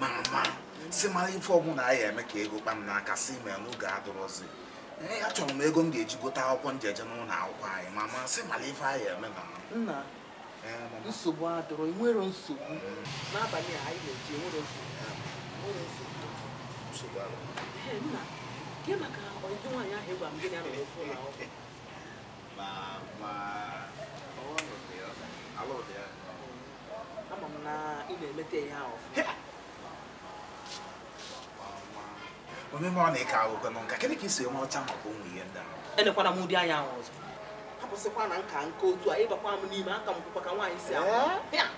mara mara si mara ife ọbụla a ya eme ka ego kpam m n'aka si ma n'oge adụrụzi achọrọ m ego m ga-eji gote akwụkwọ njeje n'ụlọ akwụkwọ anyị ma masị mara ife a ya eme na nna nsogbu adụrụ nwere nsogbu n'abalị a anyị na-eji e nwere nsogbu nna gị maka ọdịdị nwaanyị ahụ ịgwa m gị na-arụ ụlọ akwụkwọ ama m na ị na-emeta ọ na-eke agụgọ nọ nka kedụ ka isi enwe ọcha maka ụmụ ihe ndị ahụ elekwana m ụdị anya ahụ ọzọ akwụsịkwa na nka nke otu a ịbakwa m n'ime aka m kwụkwa ka nwaanyị si aka eh?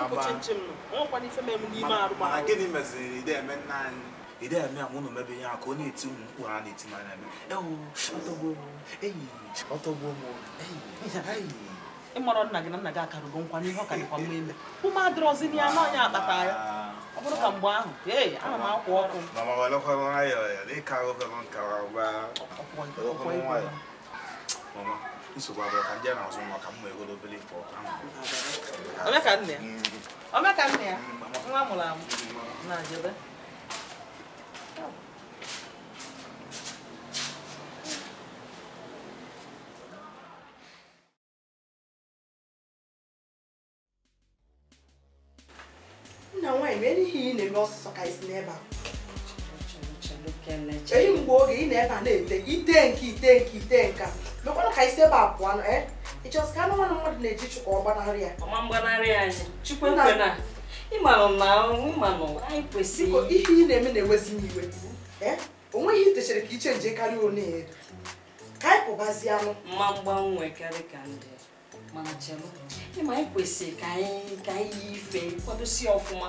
m kwụchi nche m nọ ọnwekwana ife mere m n'ime arụ mana gịnị meziri ide nna anyị ide eme a ụnụ mebe ihe aka ọ na-eti ụmụ mkpụrụ a na-eti n'anya eme ewu ọtọgbuo m enyi ọtọgbuo m ịmarọ nna gị na nna gị akarugo nkwa n'ihe ọ ka dịkwa mma ime ume adịrọzi na ya na ọnya akpata ya ọ bụrụ ka mgbe ahụ ee ana m akwa ọkụ omeka nna ya nwa mụrụ amụ na jebe taịm erighị ị na-eme ọsụsọ ka isi n'ebe a eyi mgbe oge ị na-ebe a na-ete ite nke ite nke ite nka mekwara ka isi ebe a pụọ ịchọsị ka anụmanụ mmadụ na-eji chukwu ọgbanarị ya ọma mgbanarị ya chukwu ekwe na ịmanụ na ịmanụ anyị kwesịrị ihe ị na-eme na-ewezi m iwe o nweghị itechara ka iche nje karịa one edo ka anyị pụbazie anụ mma mgbanwe karịa ka ndị mana chelụ ịma anyị kwesịrị ka anyị ka anyị yi ife kwadosi ọfụma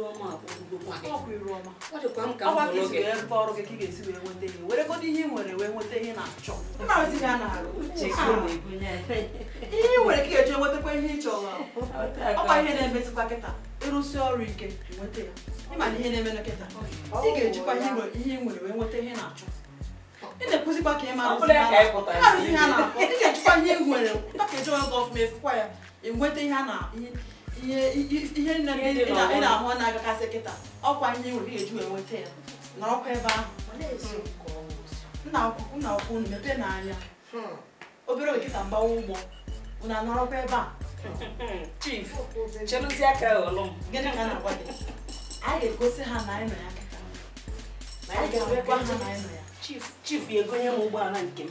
ọrụ gị ka ị ga-esi wee nweta ihe ihe nwere wee ihe nwere ka eji nwetakwa ihe ị ọ ihe na kịta ịrụsi ọrụ ike nweta ya ihe na-eme na kịta ị ga-ejikwa ihe nwere wee nweta ihe na-achọ ị na-ekwuzikwa ka ị ma ihe a na-akpọ ị ga-ejikwa ihe nwere ka eji ọrụ ya a ihe ihe nne ị na-ahụ na-agakasị kịta ọkwa ihe nwere eju enweta ya na ọkwa ebe ahụ nna akwụkwọ mepee n'anya hmm. obere nkịta mgbawa ụgbọ unu anọrọkwa ebe a hmm. chief cheluzi aka ghọlụ m gịnị ka na-agwa gị anyị ga-egosi ha na anyị nọ ya kịta anyị ga-enwekwa ha na anyị nọ ya chief egonye m ụgbọala nke m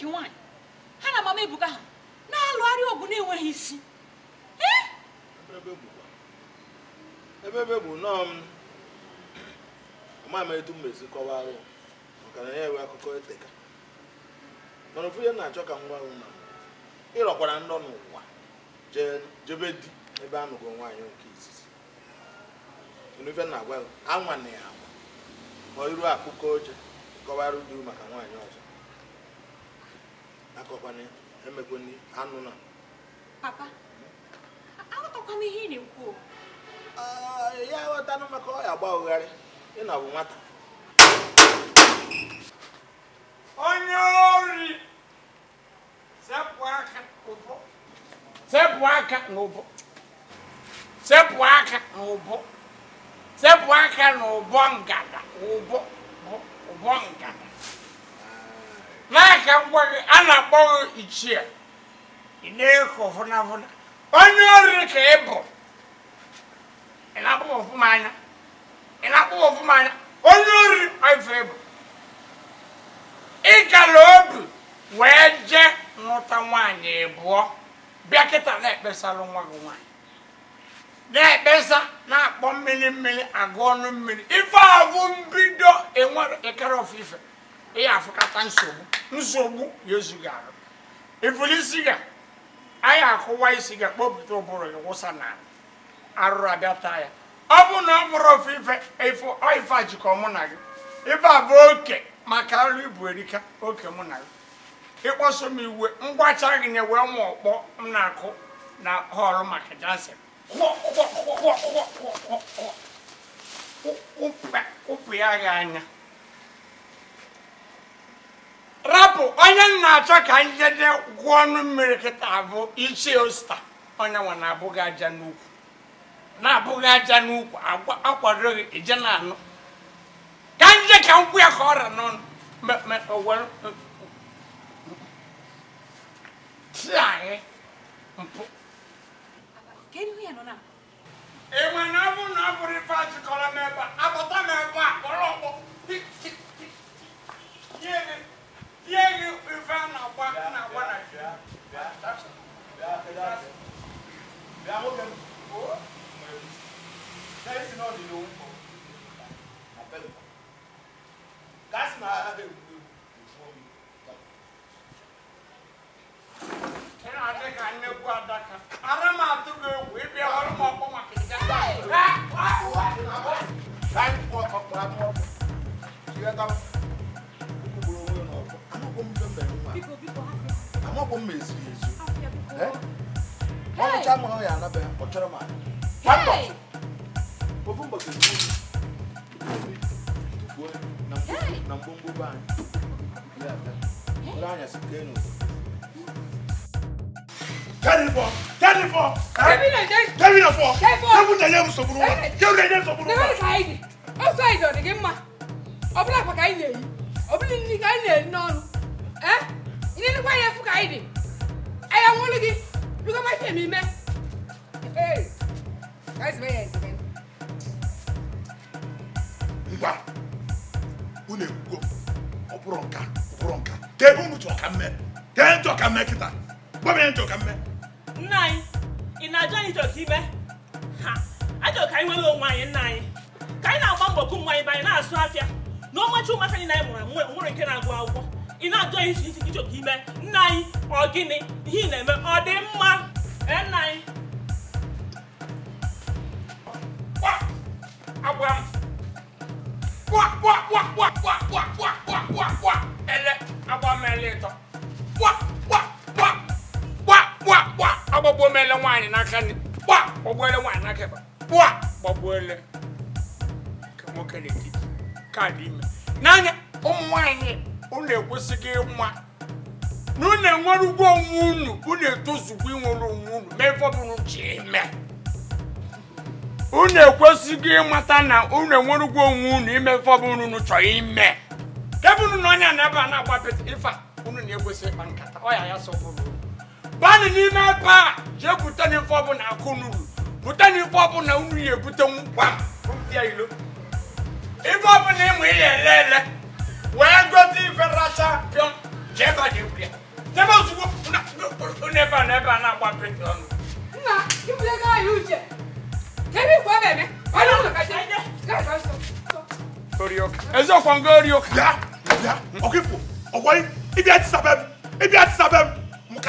iji nwaanyị ha na mama Ebuka ha na arịa ọgụ na-enweghị isi ebebe bụ nọọ m amaghị etu m mesi kọwarụ maka na ya enwe akụkọ eteka mana ofu ihe na-achọ ka m gwa na ịrọkwara ndọ n'ụwa jebe di ebe a nụgo nwaanyị nke izizi ife na-agwa anwa na ya anwa ma iru akụkọ oche kọwarụ di maka nwaanyị ọzọ akọkwana emekwana anụ na papa aghọtakwana ihe ị na-ekwu ya aghọtanụ maka ọ ya ụgharị ị na bụ nwata onye ori sepụ aka sepụ aka n'ụbọ sepụ aka n'ụbọ sepụ aka n'ụbọ ngada ụbọ ụbọ ngada n'aka ngwa a na akpọghị gị ichie ị na-ekọ onye ori ka ị bụ ị na ọfụma anya ọfụma anya onye ori ife ịbụ ị gara obi wee jee nwụta nwaanyị ịbụọ bịa kịta na-ekpesalụ nwa gị nwaanyị na-ekpesa na-akpọ mmiri mmiri agụ ọnụ mmiri ife ahụ mbido enwere ịkara e ya afụkata nsogbu nsogbu ya ezughị arụ ifuli anyị akụwa isi ga kpọpụta ụbụrụ ya wụsa na arụrụ abịa taa ya ọ bụ na ọ bụrụ ofe ife a jikọ mụ na gị ife bụ oke maka arụ ibu erika oke mụ na gị ịkpọso m iwe ngwacha gị na wee ma ọkpọ m na-akụ na họlụ maka jansen ụpụ ya gị anya rapụ onye m na-achọ ka njede gwụọ ọnụ mmiri kịta bụ ichie osta onye nwa na-abụghị aja n'ukwu na-abụghị aja n'ukwu akwadoghị ije na anụ ka nje ka nkwụ ya ka ọra n'ọnụ ti anyị mpụ enwe na ọ bụ na ọ bụrụ ife achịkọrọ m ebe a akpọta m ebe a kpọrọ ọkpọ Here you found a one and a one. Yeah, yeah, that's it. Yeah, that's it. Yeah, okay. Oh, there is not the room for a bell. That's my other room before me. Then I think I knew what that can. Arama to go with the arm of my kids. Hey! What? What? What? Time for a problem. You have amabɔ mu esiri ezu ɛ ɔmu kya mu hɔ yɛ anabɛ ɔtwɛrɛ mu ani one bottle ofu bottle mu ebi tufuo na mbombo na mbombo ban yɛ ɛfɛ ɔlɔ anya si kee no. Kẹ́ni fọ, kẹ́ni fọ, kẹ́ni na fọ, kẹ́ni na yẹ musokuru wa, kẹ́ni na yẹ musokuru wa. Dẹ́gbẹ́ni ka yi di, o sọ yi dọ̀ digi mma, ọbúlà kpa ka yi na yi, ọbúlà nini ka yi na yi n'ọnụ, ẹ́. ịgwa ya efu ka anyị dị anyị anwụrụ gị bigo mafe m ime ngwa unu ekwugo ọ bụrụ nka ọ nka ka ebe unu ka mme ka e chọọ ka mme kịta gwa ya nchọ ka mme nna anyị ị na-ajụ anyị chọọ ibe ha ajọ ka anyị nwere onwe anyị nna anyị ka anyị na-agba mbọ kụ nwa anyị bụ na-asụ afịa na ọmachi ụmụaka anyị na anyị mụrụ nwere nke na-agụ akwụkwọ ị na-ajụ ihe isi isi ichọta ime nna anyị ọ gịnị ihe ị na-eme ọ dị mma nna anyị agwa m kwa ele agba m ele ịtọ ele nwaanyị n'aka nri kwa gbagbuo ele nwaanyị n'aka ịba nke nwoke n'etiti kaadị ime n'anya ụmụ nwaanyị unu ekwesịghị ịnwa na unu enwere ugwu onwe unu unu etozugbo inwere onwe unu mee fọbụrụ ji eme unu ekwesịghị ịmata na unu enwere ugwu onwe unu ime fọbụrụ unu chọrọ ime kebụnụ na onye na ebe a na-agbapịta ife unu na-ekwesị ịkpa nkata ọya ya sọpụrụ banụ n'ime ebe a jee bute na ife ọbụla akụ n'uru bute na ife ọbụla unu ya ebute ngwa m ilo ife ọbụla ịmụ ihe ele ele wɛɛgɔdi fɛrɛta dɔn jɛba de wuli jɛba sugu na ne ba ne na wa pe dɔn. nna i wuli k'a y'u jɛ ne b'i bɔ bɛn mɛ wala wula ka jɛ n'a ka so. orioka ezo kɔn ko orioka. ibi a ti ibi a ti sa bɛɛ mu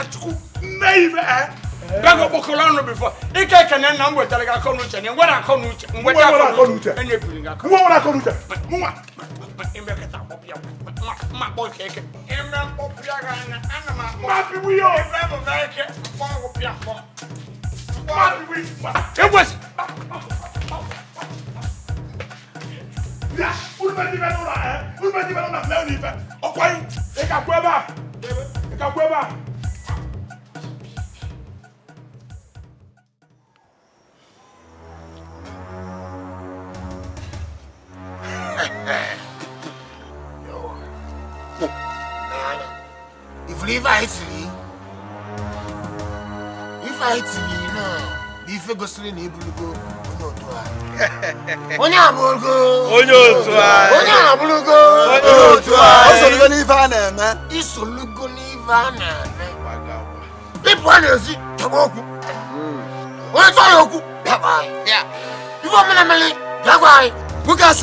ɛ bɛɛ ko ko kɔlɔn no bi fɔ i kɛ kɛnɛ na n bɔ tali ka kɔ n'u cɛ nin wɛrɛ kɔ n'u cɛ nin wɛrɛ kɔ n'u cɛ e ni biri ka kɔ mun wɛrɛ kɔ n'u cɛ mun wa. n bɛ ka taa ma ma bɔ kɛ kɛ n bɛ ka na an ma bɔ ma bi wi o n bɛ bɔ n'a ye kɛ n bɔ ko piya bɔ n bɔ si. olu bɛ dibɛ n'o la ɛ olu bɛ dibɛ n'o la filaw ni fɛ o kɔni e ka bɔ e ba e ka bɔ e ba. anyị ife gosiri na ịbụrụgo onye otu onye abụrụgo onye otu anyị onye abụrụgo onye otu anyị isolugo n'ife a na-eme isolugo n'ife a na-eme ịpụ a na-ezi chọba okwu hmm. onye ya okwu ife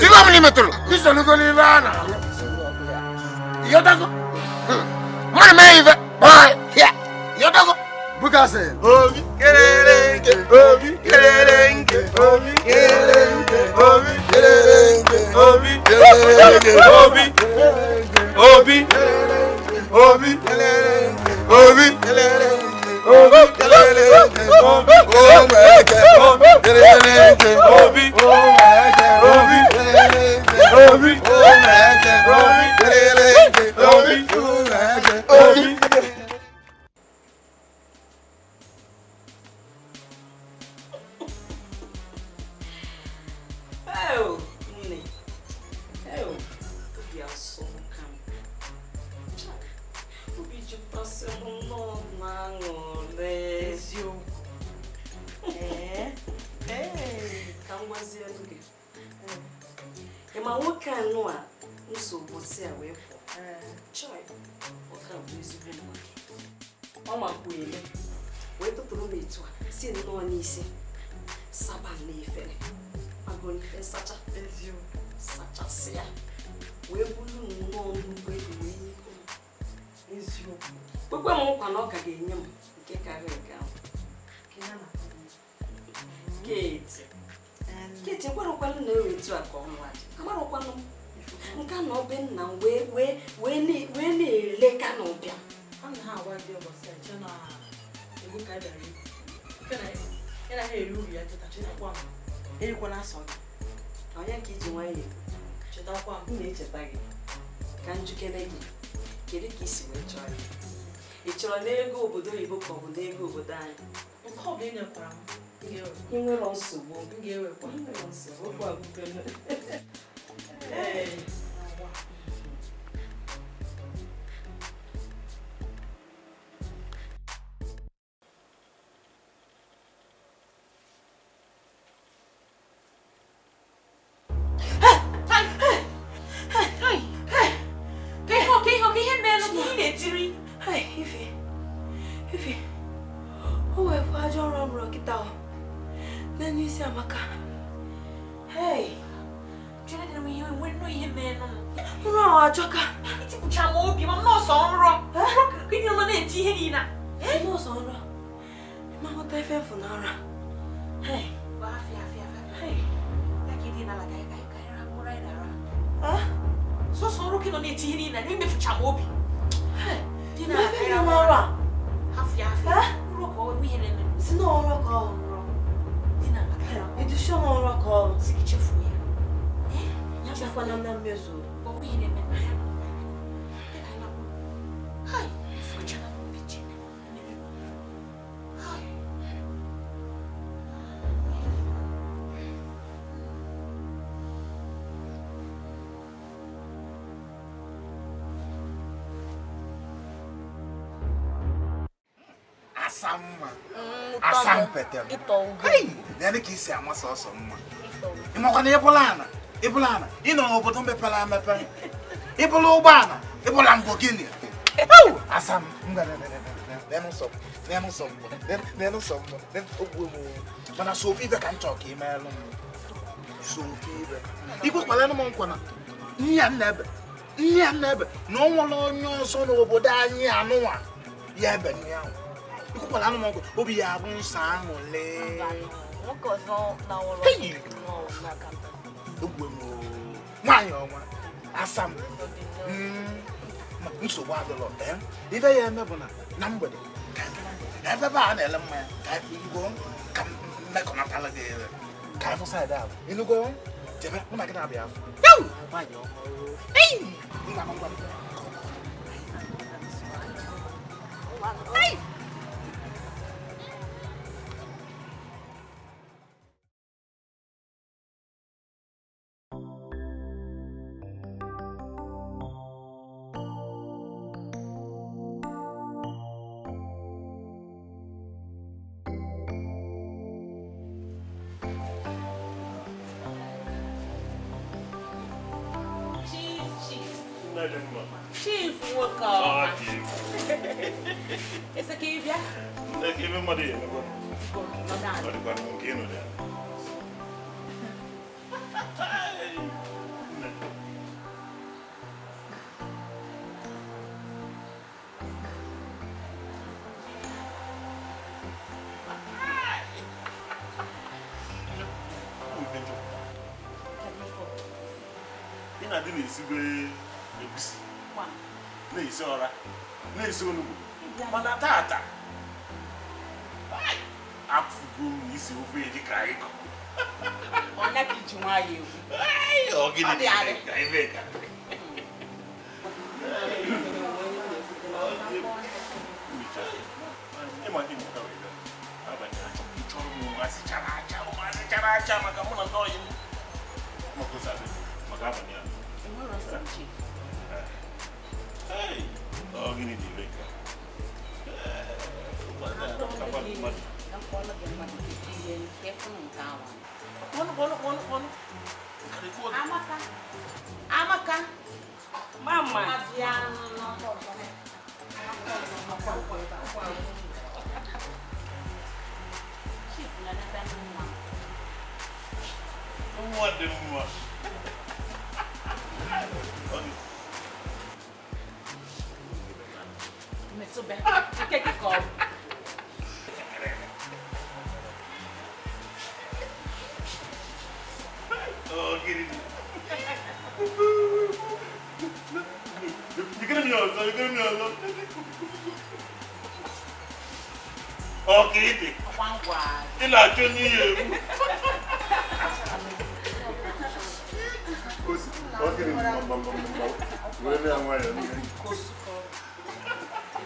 ife n'ife a na-eme Obi, kásẹ̀. omi kéréńké omi kéréńké omi kéréńké omi kéréńké omi kéréńké omi omi omi omi omi kéréńké omi omi kéréńké omi omi kéréńké omi omi kéréńké omi. chetakwa m na-echeta gị ka njikere gị kedu ka isi wee chọọ ya ị chọrọ n'ego obodo oyibo ka ọ bụ n'ego obodo anyị nke ọ bụla ị nyekwara m nsogbu okwu mpete dị ka isi ama sọsọ mma ịmakwana ịbụla ana ịbụla ana ị nọ n'obodo mepere emepe ịbụla ụgbọala ịbụla mbọ gịnị asa na-ebe nne m na-ebe na ọ nwere onye ọzọ n'obodo anyị anụwa ya ebe ukubala noma obiyabo ngisango le ngokozo nawo lo ngona kamba ugwe mo mwanyo mwa asam mm nsogbu adịlọ ee eh? ibe ya eme bụ na na mgbede na ebe be a na-ele mmanya ka igo ka mmekọnatala gị ere ka ịfụ saịdị ahụ ịnụgo jebe mụ na gị na-abịa afọ nwaanyị ọhụrụ nna m ngwa m ị na-esibe egusi na-esi ọra na-esi onugbu mana tata afụgo m isi ofe eji ka anyị kọ ọnya ka iji nwayọ egwu ọgịnị ka ebe ka Maka mụ na ndị ọyị maka abalị ya sentir. Ei, ó, menininho, vem cá. Não cola de uma dividida, ele quer fundar, ó. não quando, quando, quando? Amacá. Amacá. Mamãe. Aviar, não, não, não, não. What the fuck? too bad. que take it off. oh, get it. You're gonna be on, you're gonna be on. Oh, get it. One word. You're not doing it. Okay, I'm going to go.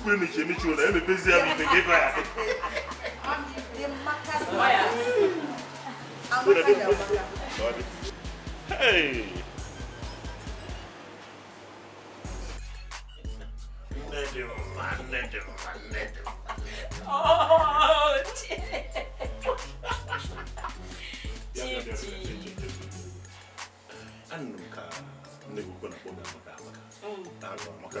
ukwu emechi emechi ụlọ emepezi ya bụ ite gị baa Hey! Nne dị mma, nne dị mma, nne dị mma. Oh, Chichi. Anụ ka nne gị ukwu na-akpọ gị amaka amaka. Mm. Ahụ amaka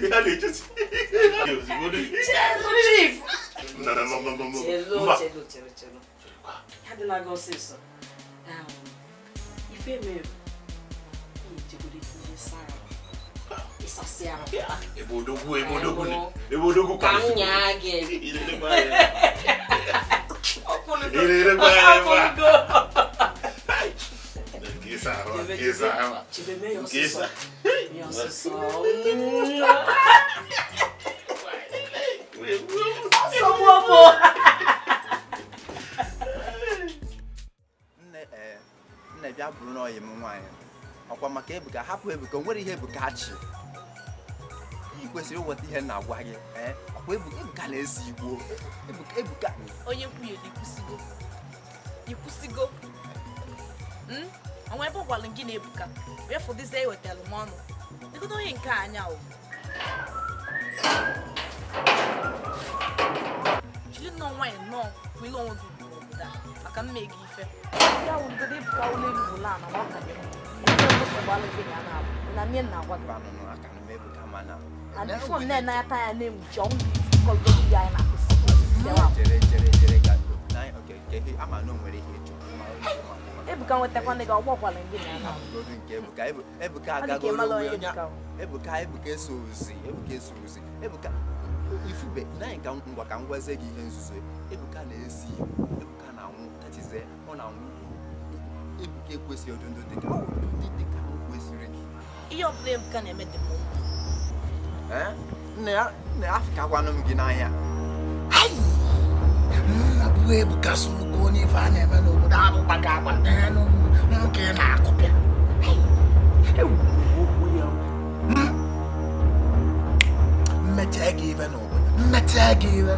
Realities. Chelulu. No, no, no, no, no. Chelulu, chelulu, chelulu. How did I go see so? Um, if you may, Ìsàsíara. Ebodogun ebodogun ni. Ebodogun kan. Yon se son Son mwopo Nne bịa bụrụ n'ọyị m nwaanyị ọkwa maka Ebuka hapụ Ebuka nwere ihe Ebuka chi i kwesịrị ịnweta ihe na-agwa gị ọkwa Ebuka na-ese hmm? igbo Ebuka onye kwuye ikwụsigo onwe ebe ọ gwara gị na Ebuka wee fụdịzie ewetalụ m ọnụ Ikutohin kanyaw. Jili nọ nwanyị nọ kwilo ọdụ n'obodo a maka mmega ife. Ya wụ ndị dị ka ụlọ elu ụlọ a na nwata gị. Ndị ọzọ gbara gị ya na-abụ. Na nye nna gwa gị. And before nne na ya taa ya na-enwuchi ọnwụ kọlụ ya na akwụsị. Jere jere jere ga. Okay, okay. Ama na o nwere ihe ịchọ. Ebuka nwetakwana Ebuka Ebuka Ebuka eso Ebuka ifube naanị ka ngwa ka ebuka gị ihe nzuzo Ebuka na-esi Ebuka na-anwụ tachize ọ na-anwụ Ebuka ekwesịghị ụdị dị ka dị ka ihe ọ Ebuka na-eme dị nne ya afịkakwanụ m gị n'anya abụghị ebukasị nnukwu onye ife a na-eme n'obodo ahụ gbaga agba nwoke na-akụpịa mmecha ga iwe n'obodo mmecha ga iwe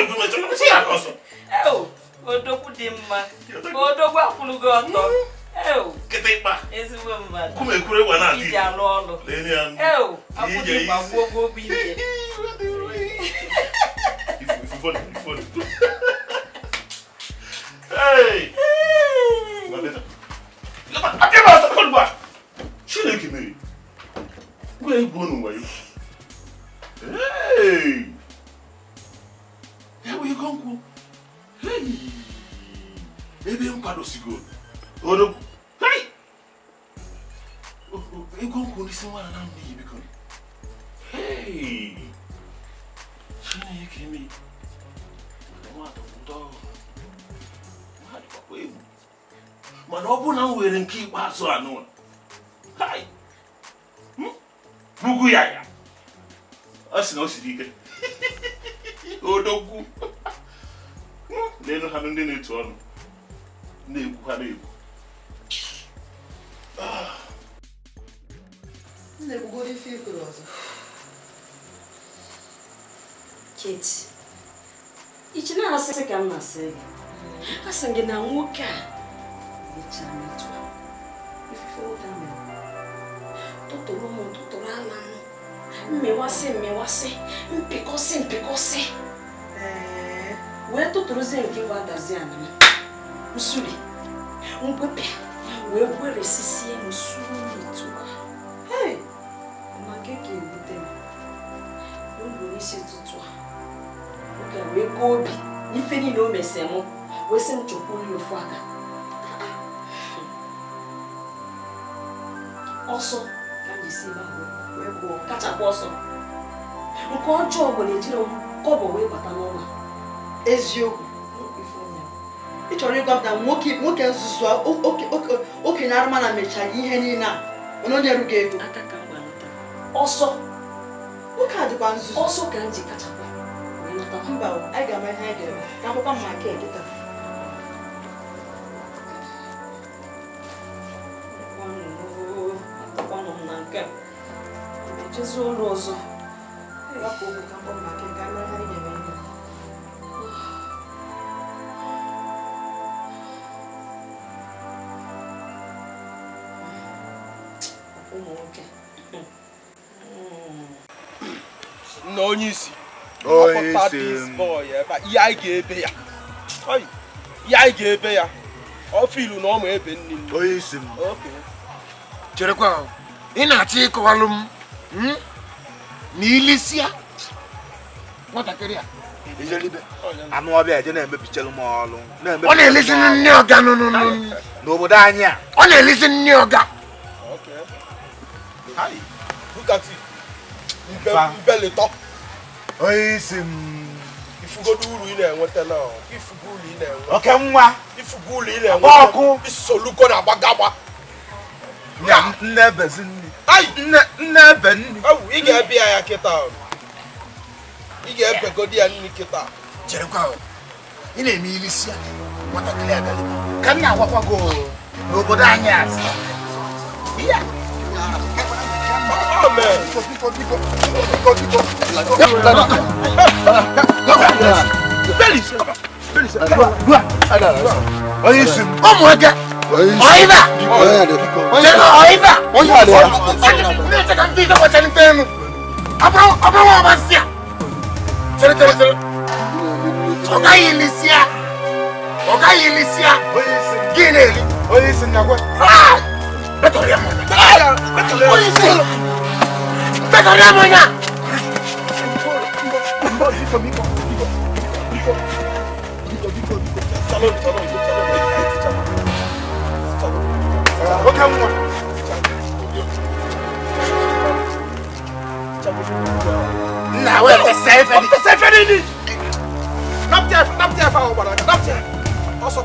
egwu metụ kwụsị ya ka ọsọ eo odogwu dị mma odogwu akwụlụgo ọtọ eo kịtịkpa ezigbo mmadụ kume ekwure wa na adị iji alụ ọlụ eo akwụdị gbagbuo Chineke mere! Gwa egwu ọnụ wayo! Hey! wigonku hey ebe mkwado sigo odo hey igonku nisi mwana na mbi biko hey chini yake mi mwato mto mwadi kwa kwebu mana ọ bụ na m were nke ikpeazụ a n'ụlọ hai bugu ya ya ọ sị na o siri ike odogwu na ha ndị na-etu ọnụ na-egwu ha na-egwu na dị ife ikoro ọzọ keti ichi na-asị ka m na-asị gị asị gị na nwoke a mechaa metụ ifufe nwoke a mere tụtụrụ m tụtụrụ ala m mmewasị mmewasị mpịkọsị mpịkọsị wee tụtụrụzie nke bụ adazi anama nsuli ngwepịa wee gweresisie m sutu maka ka ebute m n'oge n'isi ụtụtụ oge wee kọọ obi n'ife niile o mesi m wee sị m chọkwuye ofu aka ọsọ ka m jisi wee gụọ kachapụ ọsọ nke ọjọọ bụ na ejiri m kọbọ wee bata n'ụlọ eziokwu ị chọrọ ịgwa m na nwoke nzuzu okenye arụma na mechaghị ihe niile a onye onye erughị ego ọsọ nwoke a dịkwa nzuzu ọsọ ka m ji kachakwa mba anyị ga-ama ihe anyị ga-eme ka akwụkwọ m maka ekịta akwanụ m na nke a ejezie ụlọ ọzọ ka mkpọ maka ụmụ nwoke na hmm. hmm. onye isi ihe anyị eh, ga-ebe ya ihe anyị ga-ebe ya ọfilu na ọmụ ebe nne m onye isi m cherekwa ị na-achọ ịkọwalụ m na hmm? ilisia nwatakịrị a anụ na-emepichelụ m ọlụ ọ na-elesi nne ọga n'obodo anyị a ọ na-elesi nne ọga look at it ibẹ̀ lè tọ́. oye ṣe mu. Mm. ifugodulu yìí na-enwe tẹ́lẹ̀ o ifugulu yìí na-enwe. oke nwa. ifugulu yìí na-enwe tẹ́lẹ̀ ọkụ. isoluko na agbagagba. na nne ebezi nri. ayi nne nne ebe nri. ewu ị ga-ebi ya kịta ị ga-ebegodi ya nri kịta. jerekwa o ị na-eme ili si ya nwatakịrị agalị ka m na-agwakwa gị n'obodo anyị asị ọmọ ẹgẹ ọyìnbá jẹnu ọyìnbá Betul dia mana? Polisi! Betul dia mana? Nah, where the safe? What the safe? Not there, not there, not there. Also.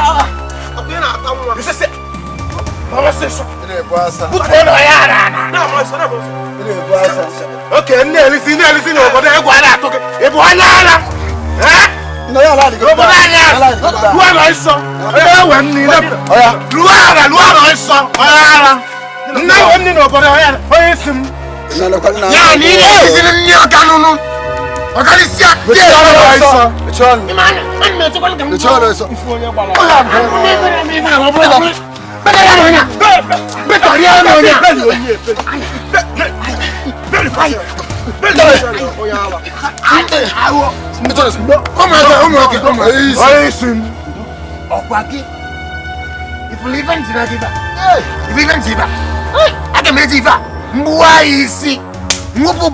basa. Bukono yara na. Na mo so na mo so. Ile asa. Okay, nne elisi nne elisi na obodo egwu ala atoke. E ala ala. Eh? Na ya ala di. Obodo ala. Ruwa na iso. E we nni na. Oya. Ruwa ala, ruwa na iso. Oya ala. Nna we nni na obodo oya. Oya isim. Na Ya ni ile elisi nni o kanunu. O kan isi a. Ye ala iso. Echon. Imana. Ani me to kan kan. Echon iso. Ifu onye gbara. Oya. Ni me na mi na obodo. Bẹ́ẹ̀ lẹ́nu ọ̀nà. Bẹ́ẹ̀ tọ̀rí ẹ̀rọ ọ̀nà. Bẹ́ẹ̀ ni oyè bẹ́ẹ̀ ni fáyọ̀. Bẹ́ẹ̀ ni Mẹ́wọ́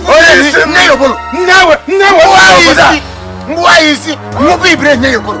bolo yìí sí. Nyẹ́ yọ̀ bolo. Nyẹ́ wọ̀. Mbuwa sí. Mbuwa yìí sí. Nwópò ìbìrẹ̀ nyẹ́ yọ̀ bolo.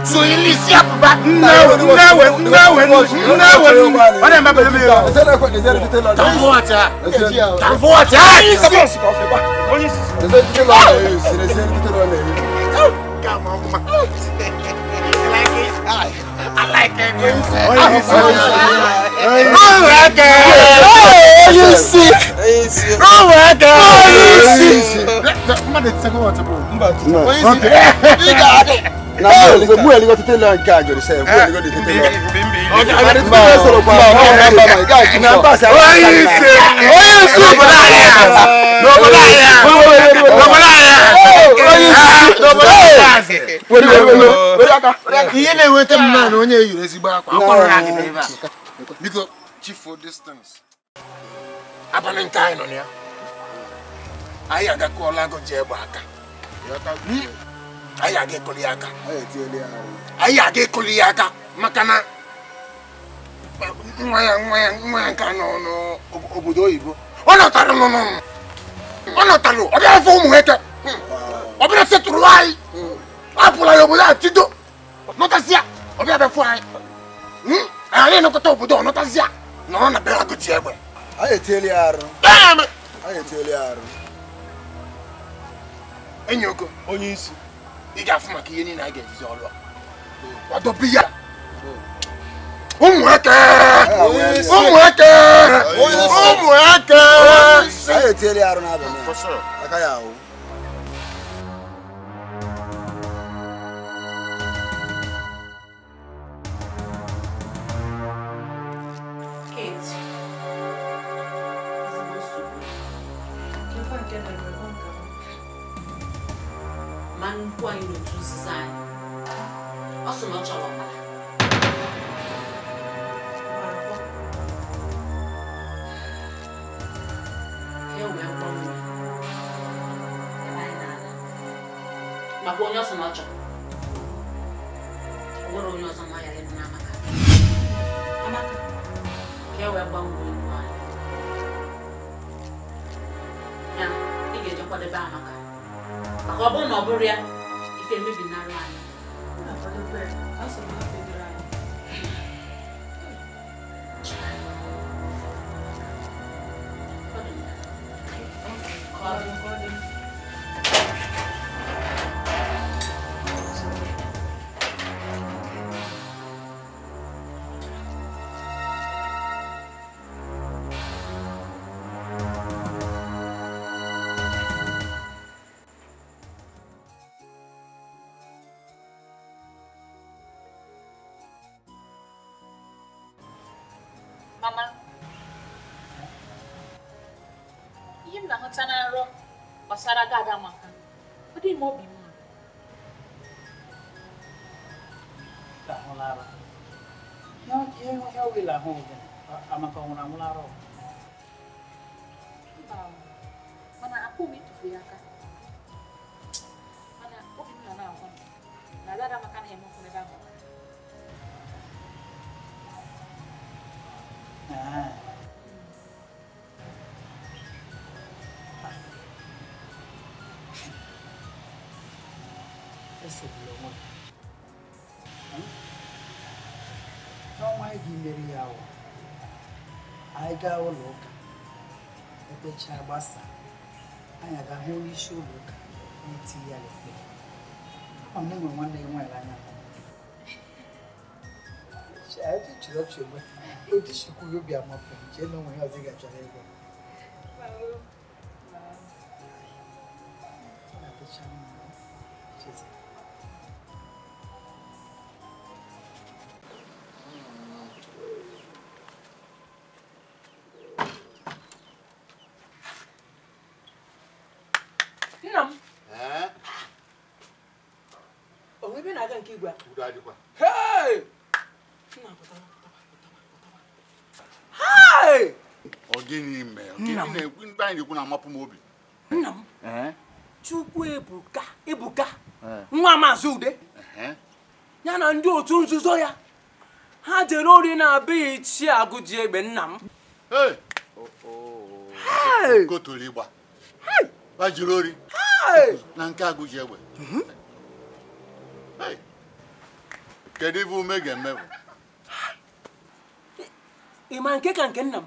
Now, now, nawe now, nawe now, wale mbabe lumi yo tamfuata tamfuata kama mama I like it. Oh, my God. Oh, you sick. Oh, my God. Oh, you sick. Come on, let's talk about it. Okay mu yɛrɛ ko tete lan k'a jɔ sɛ mu yɛrɛ ko de tete lan. ale tun bɛ sɔrɔ kuma ma ma ma ma k'a jina n ba sa. o y'i se o y'i se dɔbɔla yɛ dɔbɔla yɛ dɔbɔla yɛ o y'i se dɔbɔla yɛ. wele wele wele wele aka. iye ne wele tɛ mun na ni o ye yɛrɛ si baara kɔ. a kɔrɔ y'a kɛ ne ba. because chief for distance. abali n ta yen nɔ ni ya. a y'a ka kɔ la ko jɛ bɔ a kan a y'a kɛ kɔli y'a kan a y'a kɛ kɔli y'a kan makana ŋmaya ŋmaya ŋmaya kan nɔ nɔ obodo oyibo o n'o ta do nɔnɔ o n'o ta do o bɛna fɔ o mun kɛ o bɛna se turu wa ye a bula ye obodo a ti do n'o tɛ siya o bɛna bɛ fɔ a ye ale n'o tɛ obodo n'o tɛ siya nɔnɔ na bɛɛ ka to tiɲɛ bɔ. a ye teliya yɛrɛ. bɛɛ mɛ. a ye teliya yɛrɛ. e ɲɛ ko. o y'i si ija fuma k'i ye ni n'a gɛn sisan olu wa wa dɔ bi yala o mɔ kɛ o mɔ kɛ o mɔ kɛ. a ye teli aruna o. Kate, you E ma nnukwu anyị n'otu nzuzo anyị ọ sị na ọ chọrọ ọbara makwa onye ọsọ na ọ chọrọ o nwere onye ọzọ nwa ya lebe n'amaka amaka ka e wee gbanwee iwu anyị ya ị ga-eje kwadebe amaka maka ọ bụrụ na ọ bụrụ ya ife mmebi nara anya. sebulonwa n'ọnwa ga ya ahụ anyị gaa ụlọ ụka ekpechaa gbasa anyị aga hụ onye isi ụlọ ụka na-eti ya ekpe ọ na enwere nwanne ya anyị na-ekwu na-amapụ m obi nna m chukwu ebuka ebuka nwa maazị ude ya na ndị otu nzuzo ya ha jere ori na abịghị ichie agụji egbe nna m oh, oh, oh. koturu ịgba ha jiri ori na nke agụji egbe mhm. kedu ibe ume ga-eme bụ ịma nke ka nke nna m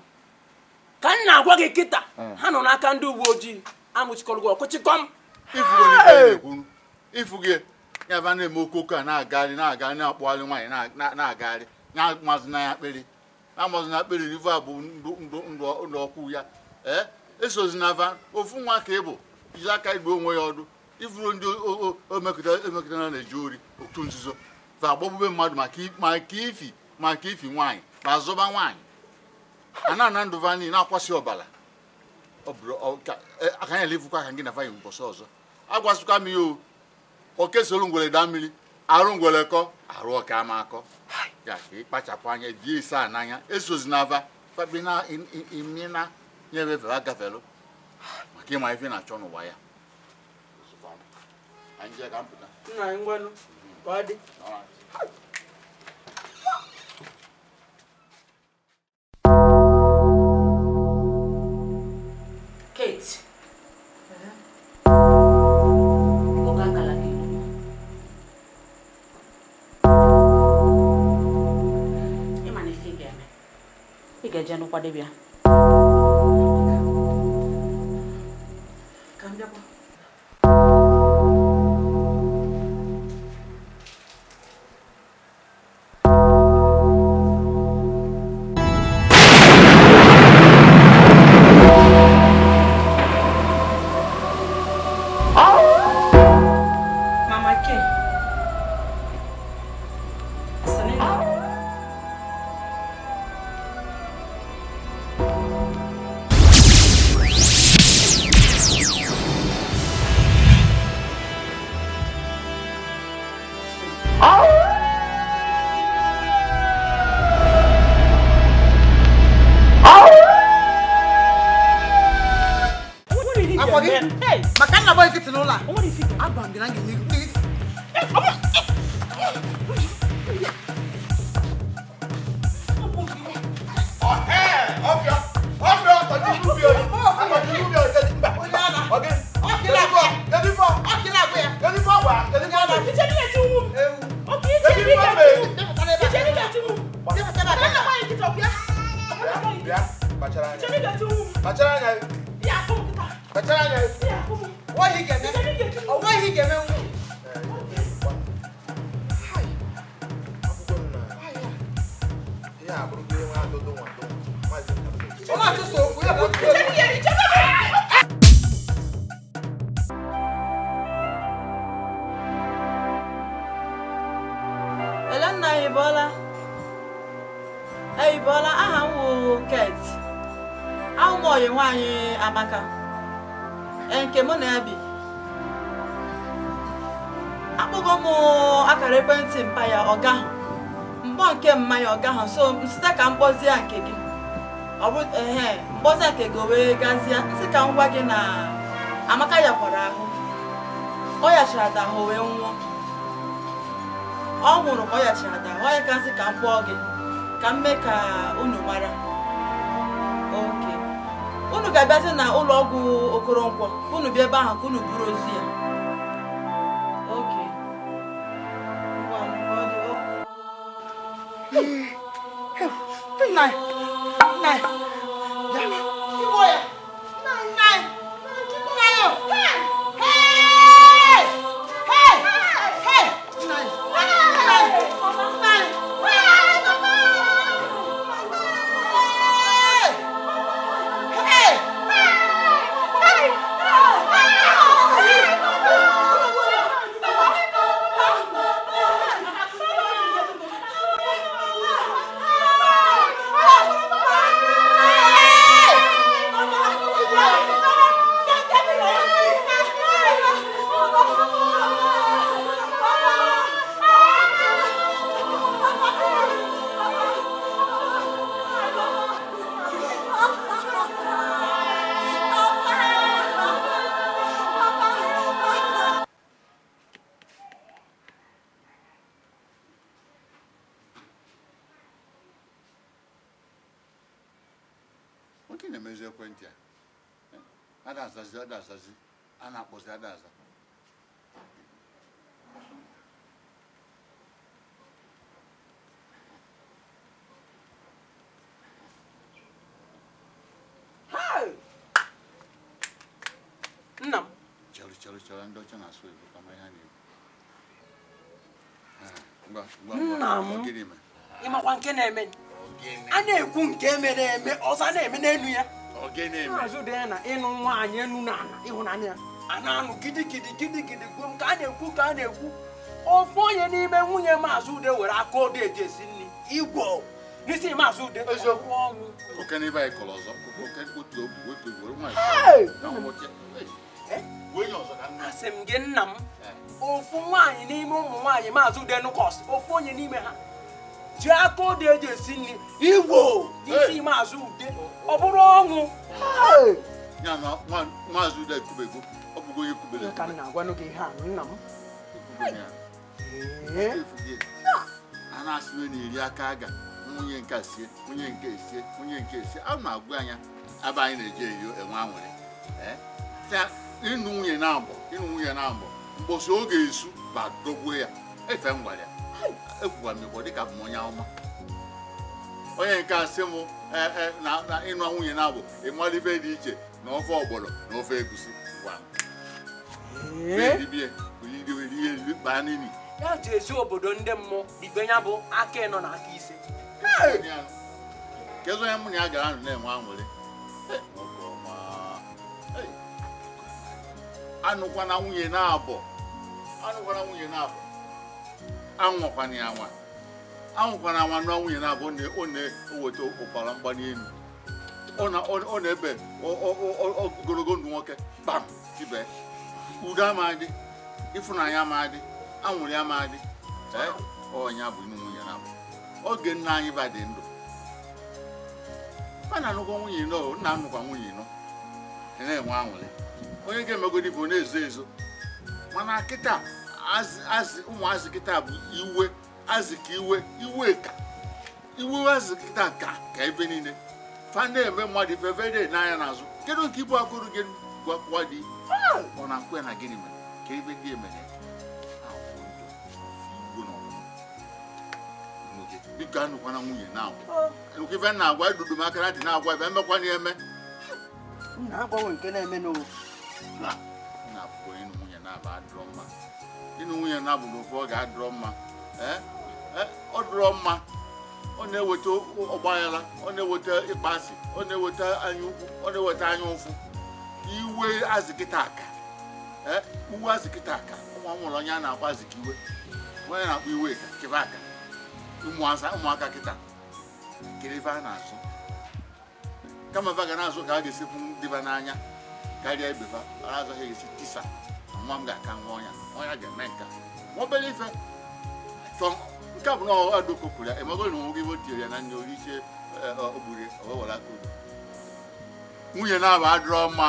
m na-agwa gị kịta hmm. ha nọ n'aka ndị uwe ojii anwụchikọrọ gị ọkụchịkọm ifu gị ya ba na-eme okoko a na-agagharị na-agagharị na-akpụgharị nwaanyị na-agagharị na-amazina ya akpịrị na-amazina akpịrị ivu a bụ ndụ ọkụ ya ee esozina va ofu nwa ka ị bụ jiri aka igbe onwe ya ọdụ ifuru ndị omekọtara e na-eji ori otu nzuzo va agbọgbube mmadụ maka ifi maka ifi nwaanyị ma zụba nwaanyị ana na ndụ vanyi na-akwasị ọbara aka ya elevukwa aka gị na vanyi mbọsị ọzọ agwasịkwa m ya o kesoro ngwere daa mmiri arụ ngwere kọ arụ ọka ama akọ ya ka ịkpachapụ anya die ise a n'anya esozi na ava fabina nyevevere agafelu maka ịma ife na-achọ n'ụwa ya nna anyị ngwanụ ọ dị पढ़ी so nsịta ka mkpọzie nke gị ọ bụ nke gị wee gazie nsị ka ngwa gị na amaka yakwara ahụ ọ yachara ada ahụ wee nwụọ ọ nwụrụ ka ọ yachara ada ọ ya ka nsị ka m kpọọ gị ka m mee ka unu mara oke unu ga-abịazi na ụlọ ọgwụ Okoronkwọ unu bịa ebe ahụ ka unu buru ozu ya nna ịmakwa nke na-eme a na-ekwu nke mere eme ọzọ na-eme n'elu ya azụ dị na ịnụ nwaanyị enu na ala ịhụnanya ya a na-anụ gidigidi gidigidi gwuo nke a na-ekwu ka a na-ekwu ofu onye n'ime nwunye maazị ude were aka ode eji esi nri igwọ n'isi maazị ude eziokwu ọnwụ asị m gị nna m ofu nwaanyị n'ime ụmụ nwaanyị maazị udenukos ofu onye n'ime ha ji aka odo eji esi nri igbo isi maazị ude ọ bụrụ ọṅụ ka m na-agwanụ gị ihe a nna m a na-asịwe na-eri aka aga nwunye nke sie nwunye nke sie nwunye nke sie a ma agwa anya aba anyị na-eji eyo enwe anwere ịnụ nwunye na-abụ ịnụ nwunye na-abụ mbosi oge esu ba dọgbuo ya efe m gwara ya ekwuwa m igbo dịka m onye ọma onye nke a sị m e, e, na ịnụ nwunye na-abụ ịmalibe dị iche na ofe ọgbọlọ na ofe egusi gwa m ya jezu obodo ndị mmụọ ibe ya bụ aka ịnọ na aka ise kedu onye mụ na ya gara na-enwe anwụrị anụkwana nwunye na-abọ anụkwana nwunye na-abọ ya nwa anwụkwana nwa nụọ nwunye na-abọ ọ na-eweta ụbara mgbali elu ọ na-ebe ogologo ndụ nwoke bam tibe udo amadị ịfụnanya amadị anwụrị amadị ọnya bụ inu nwunye na-abọ oge nna anyị ba dị ndụ a na-anụkwa nwunye nọ na-anụkwa nwunye nọ e na-enwe anwụrị onye ga-emegodi bụ na-ezo ezo mana kịta azị ụmụazị kịta bụ iwe azị iwe iwe ka iwe azị kịta ka ka ebe niile fa na-eme mmadụ ife ebe dị n'anya n'azụ kedu nke ibu akụrụ gị gwakwa dị ọ na-akwa na gịnị mere ka ebe ndị emere biko anụkwana nwunye na-agwa nke ife na-agwa edudu m aka na dị na-agwa ebe emekwana eme na-agbanwe nke na-eme n'ofu na ịnụ nwunye na abụrụ adụrọ ọ ga-adụrọ mma ọ dụrọ mma ọ na-eweta ọgbaghara ọ na-eweta ịkpasị ọ na-eweta anya ọ na-eweta anya ụfụ iwe azịkịta aka uwe azịkịta aka ụmụ nwụrụ onye a na onye na-akpọ iwe aka ụmụaka kịta kiribe na-azụ kama ebe a ga na-azụ ka a ga-esikwu n'anya karịa ibe ha ara agaghị esi tisa na nwa m ga-aka nwa ọnya ọnya ga-eme nka ọ obere ife nke a bụ na ọgha dokokwuru ya emego na onwe gị o ya na nne orichie eh, ogbure ọwewara aka nwunye na-aba adịrọ mma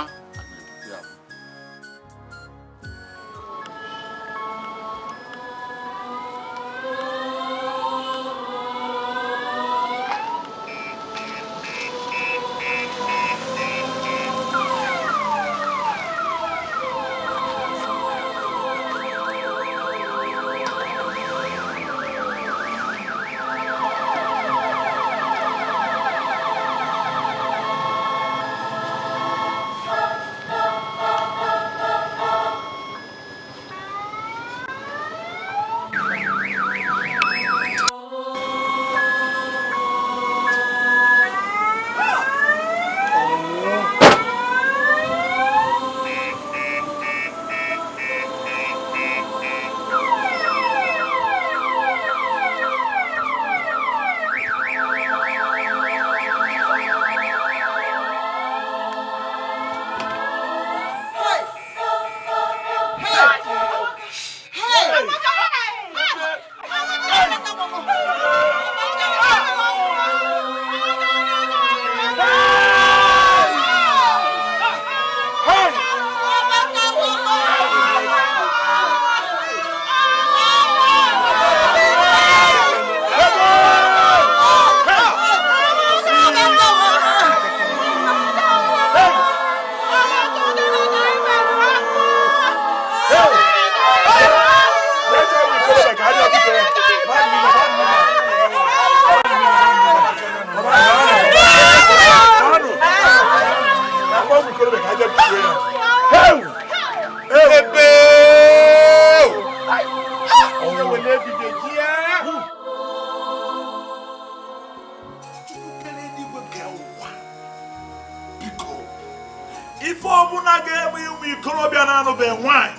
a ga-egbu ụmụ ikorobịa na-anụbeghị nwanyị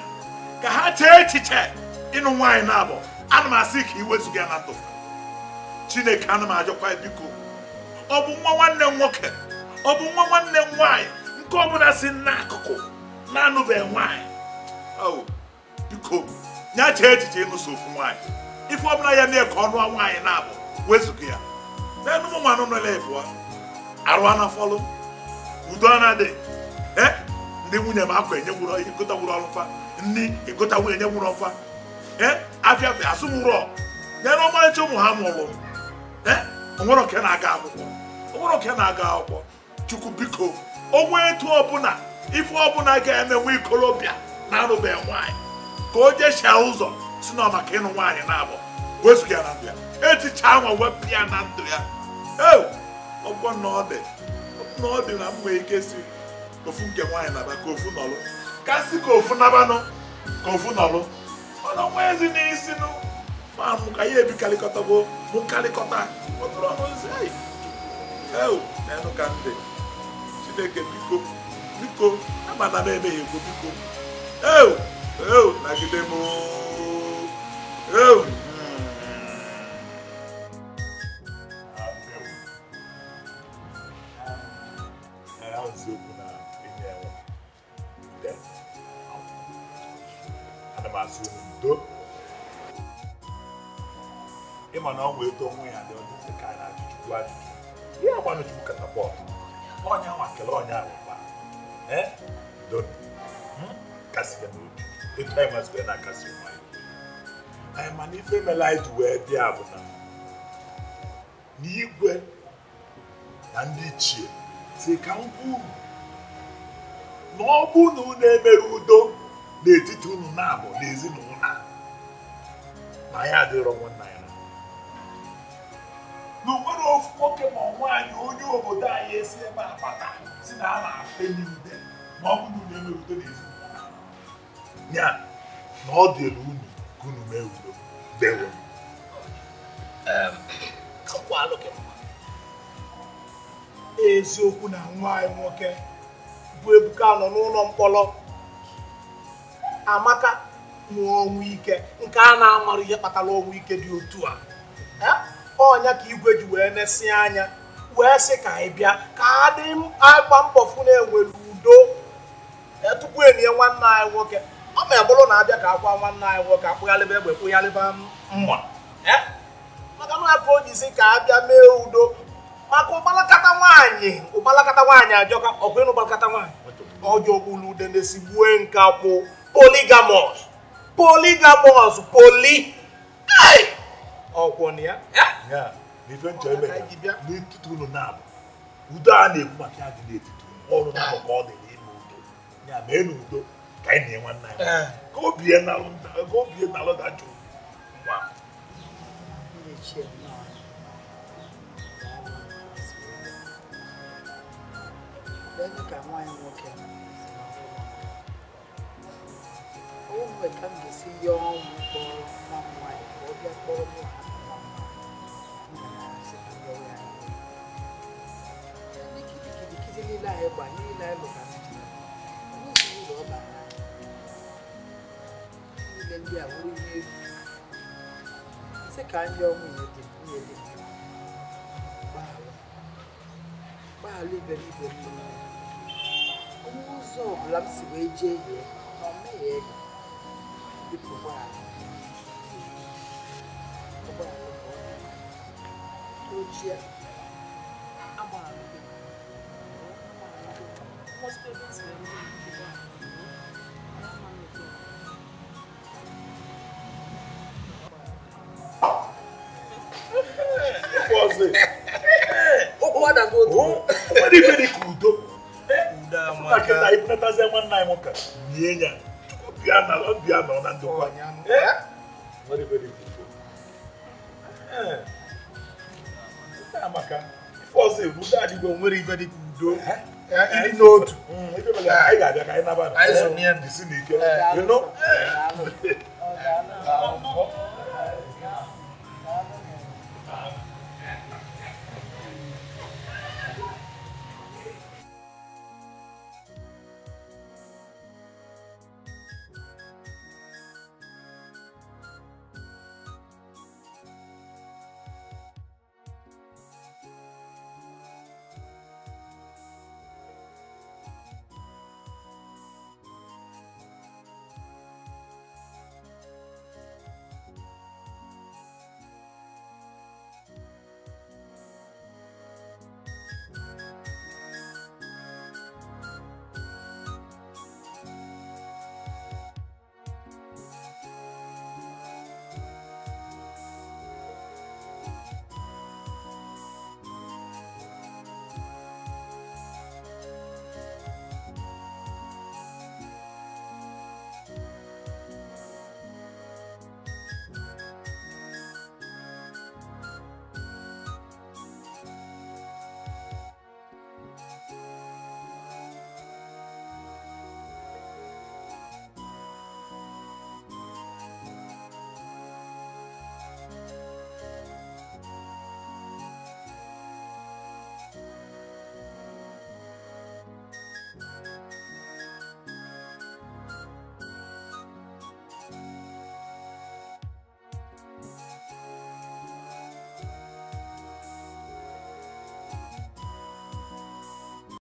ka ha chee echiche ịnụ nwaanyị na-abụ ana m asị ka iwezụga ya na ndụ chineke ana m ajọkwa biko ọ bụ nwa nwanne nwoke ọ bụ nwa nwanne m nwaanyị nke ọbụla si n'akụkụ na-anụbeghị nwaanyị oh, biko ya chee echiche ịnụso ofu nwaanyị ife ọbụla ya na-eke ọnụ nwaanyị na-abụ wezụga ya n'enụ ụmụ nwanụ nọ na-ebu arụ anafọlụ udo anadị eh? ndị nwunye m akwa enyenwụrụ ịgụtanwụrụ ọlụkwa nri ịgụtanwụ enyenwụrụ ọkwa ee afịa asụmụrọ nyere ọmarịcha ụmụ ha mụrụ ee onwere oke na-aga akwụkwọ onwere oke na-aga akwụkwọ chukwu biko onwe etu ọbụla ife ọbụla ga-eme nwa ikolobịa na-arụbeghị nwaanyị ka o jechia ụzọ si na maka ịnụ nwaanyị na-abụ wezụga ya na ndụ ya etichaa nwa wepụ ya na ndụ ya ee ọgwọ na ọ dị na ọ dị ike siri ofu nke nwaanyị naba ka ofu nọlụ kasị ka ofu nabanụ ka ofu nọlụ mana nwa ezi n'isi nụ ma mụ ka ya ebikarịkọtago mụ karịkọta ụtụrụ ọnụzi eu na-enụ ka ndị chineke biko biko amana m emeghị egwu biko eu eu nagide m eu eziokwu na ihe enwe ude ana m asị unu udo ịma na ọnwa eto onwe ya dị ọdịdị ka anyị na-ajụ chukwu ajụjụ ihe agbanụ chukwu katapọt ọnya nwa kelee ọnya alụkwa udo hmm? kasịga n'obi etu anyị mazibere na akasị ụmụ anyị anyị mana ife mere anyị ji wee bịa bụ na n'igwe na ndị si ka m kwuo na ọ bụ na unu emere udo n'etiti unu na-abụ na ezinụlọ na ya adịrọ nwanna ya na onwere ofu nwoke ma nwaanyị onye obodo anyị esi ebe a bata si na a na-afeli ude ma ọ bụ na unu emere udo na ya na ọ dịrị unu ka unu mee udo dewo eziokwu na nwa anyị nwoke bụ Ebuka nọ n'ụlọ mkpọrọ Amaka nwụọ ọnwụ ike nke a na-amarụ ihe kpatara ọnwụ ike dị otu a ọnya ka igwe ji wee nesị anya wee sị ka ị bịa ka adị agba mbọ fụ na-enwere udo tupu enye nwanne anyị nwoke ọ ma bụrụ na abịa ka akwa nwanne anyị nwoke akpụgharịba egbe kpụgharịba mma maka na aka o jizi ka abịa mee udo maka ụkpalakata nwaanyị ụkpalakata nwaanyị ajọka ọkwa ịnụ ụkpalakata nwaanyị ọjọọ ulude na-esigbue nke kwụ poligamọs poligamọs poli ọkwọ na ya n'ife nchọ eme ya n'etiti ụlọ na-abụ udo a na-ekwu maka ya dị n'etiti ọrụ ahụ ka ọ dị n'ime udo ya mee n'udo ka anyị na-enwe nna ya eh. ka obie nalụ dajụ nwa Baby can wine walk in. Oh, I come to see your boy, mom, wine, or your boy, mom, nílá ẹgbà ní ilá ẹlòmá ní ìlú ọba ilẹ̀ ilé àwòrán ilé ṣé kà á yọ ọmọ ìyẹn dé ní ẹlẹ́gbẹ̀ẹ́. live everybody. Ụzọ ọbụla m si wee jee ihe na mmehie ego bipụ ụgbọala. Ụgbọala ochie agbara gị. Most parents were elekọtazie nwanne anyị nwoke nie ya ọbịa nọ na ndokwa amaka ife ọzọ egwu ndị adịgo nwere ibe dịka udo ịdị n'otu anyị ga-abịa ka anyị nabata anyị so n'ike